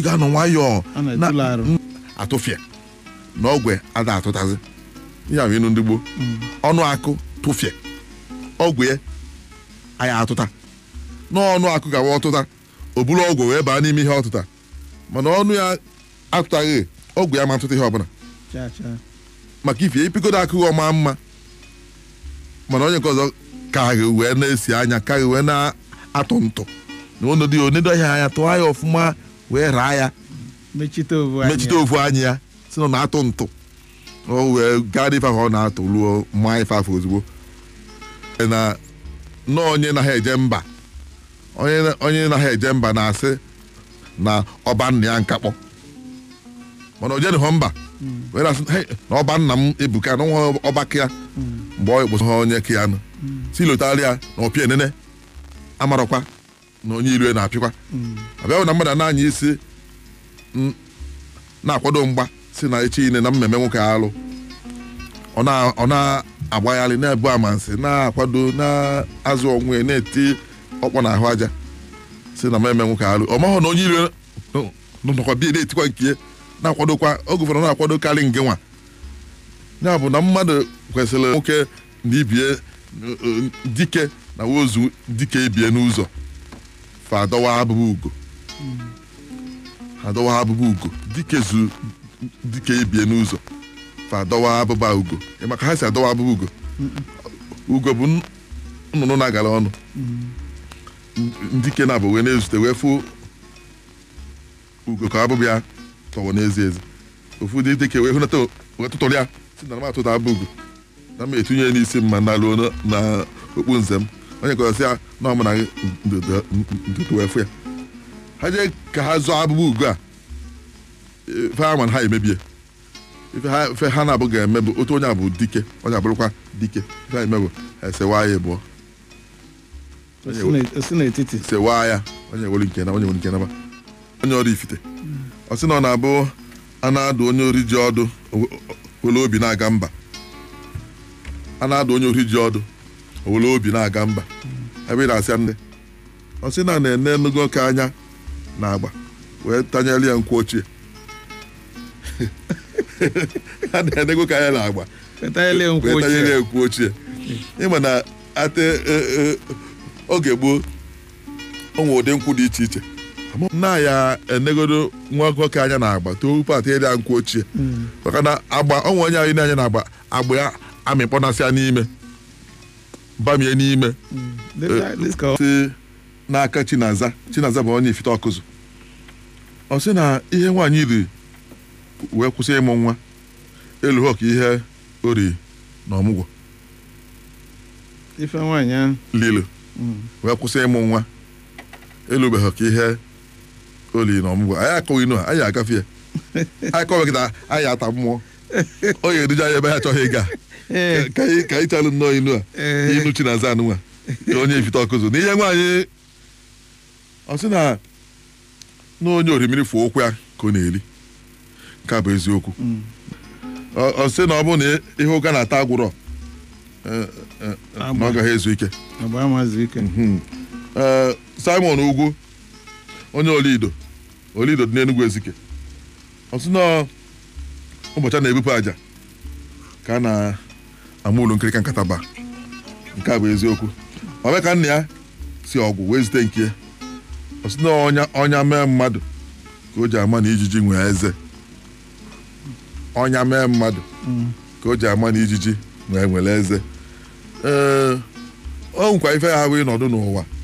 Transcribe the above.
ị ga-anọ nwayọọ mm, atụfịa na ọgwụ ada atụtazi ya bụ ịnụ ndị gboo ọnụ akụ tụfịa ọgwụ ya atụta n'ọnụ akụ gawa ọtụta o buru ọgwụ wee baa n'ime ihe ọtụta mana ọnụ ya atụtaghị ọgwụ ya ma atụta ihe ọbụla maka ife epigodo akụghị ọma mma mana onye nke ọzọ karị wee na-esi anya karị wee na-atụ ntụ na ọnọdụ onedo ahịa anya tụọ anya ọfụma wee raa ya mechite ovu anyị ya si na ọ na-atụ ntụ o wee gara ife ahụ ọ na-atụ ruo mma ife afọ ozugbo na onye na ha eje mba onye na ha eje mba na-asị na ọba nna ya nkakpọ mana o jenụghọ mba hmm. wee na-asị na ọba nna m ebuka na nwa ọbaka ya hmm. mgbe ọ ekposo ha onye ka ya nụ hmm. si lotara ya na ọpịa enene amarọkwa na onye iro na-apịkwa mm. abịahụ na mmadụ na-anya isi na-akwado mgba si na echi ile na mmemme nwoke alụ ọ na-agbagharị na-ebu amansi na-akwado na-azụ onwe na-eti ọkpọ na ahụ aja si na mmemme nwoke alụ ọ mahụ na onye iro nọkwa bi na-etikwa nke na-akwadokwa oge na-akwado karị nge nwa ya bụ na mmadụ kwesịrị nwoke na ibie dike na wozu dike ibie n'ụzọ fa adọwa abụbụ ugo adọwa abụbụ ugo dike zu dike ebie n'ụzọ fa adọwa abụba ugo maka ha si adọwa abụbụ ugo ugo bụ nnụnụ na-agara ọnụ ndike na-abụ wee na-ezute wee fụ ugo ka abụbụ ya tọwọ n'ezi ezi ofu dị dike wee hụnata wee tụtụrụ ya si na m atụta abụ ugo na m etinye n'isi ma na luo na okpu nze m onye kọrọsị ya na ọmụ na ntutu ya ha jee ka ha zọọ abụbụ ugo a ife ha nwere ha emebie ife ha na-abụ ga-eme bụ otu onye a bụ dike onye abụrụkwa dike ife ha emebụ esewa ya ịbụọ sewa ya onye were nke na onye were nke na onye ọrụ ifite ọ sị na ọ na-abụ a na-adụ onye ori ji ọdụ were obi na-aga mba a na-adụ onye ori ji ọdụ owere obi na-aga mba ebe ị na-asị nne ọ sị na na-ene nnukwu ka anya na agba wee tanyere ya nkwụ ochie a na-enego ka anya na agba tanyere ya nkwụ ochie ịma na ate e, e, oge gboo o nwere ụdị nkwụ dị iche iche nna ya enegodo nwa nwoke anya na-agba too tupu atị ịrịa nkwụ ochie hmm. maka na agba ọnwa onye anyị na-anya na agba agba ya ya n'ime bamie n'ime hmm. eh, si n'aka chinaza chinaza bụ onye ifite ọkụzụ ọ sị na ihe nwaanyị riri wee kwụsị ịmụ nwa elu ha ka ihe o riri na ọmụgwọ ife nwaanyị ahụ lilo hmm. wee kwụsị ịmụ nwa elu elubeghị ka ihe o riri na ọmụgwọ anyị akọghị inu ha anyị agafe ya anyị kọweghị na anyị ata mmụọ ọ ga-eduja ya ebe ha achọghị ịga eh. ka anyị chalụ nnọọ inu a eh. na-aza anụnwa onye ifite ọkụzụ n'ihe nwaanyị ọ sị na na onye orimiri fụ ụkwụ ya ka ọ na-eri nke bụ eziokwu mm. ọ sị na ọ bụ na ihe ụka na-ata eh, agwụrọ na ọ gaghị ezu ike mm-hmm. Simon Ugwu onye Olido Olido dị n'Enugwu Ezike ọ sị na ụbọchị a na-ebupụ aja ka na-ama ụlọ nkirika nkataba nke a bụ eziokwu ọbịa ka nna ya si ọgwụ wee zute nke ọsị na ọnya mee mmadụ ka o ji ama na ijiji nwee eze ọnya mee mmadụ ka o ji ama na ijiji nwee nwere eze ee o ife ha wee nọdụ n'ụwa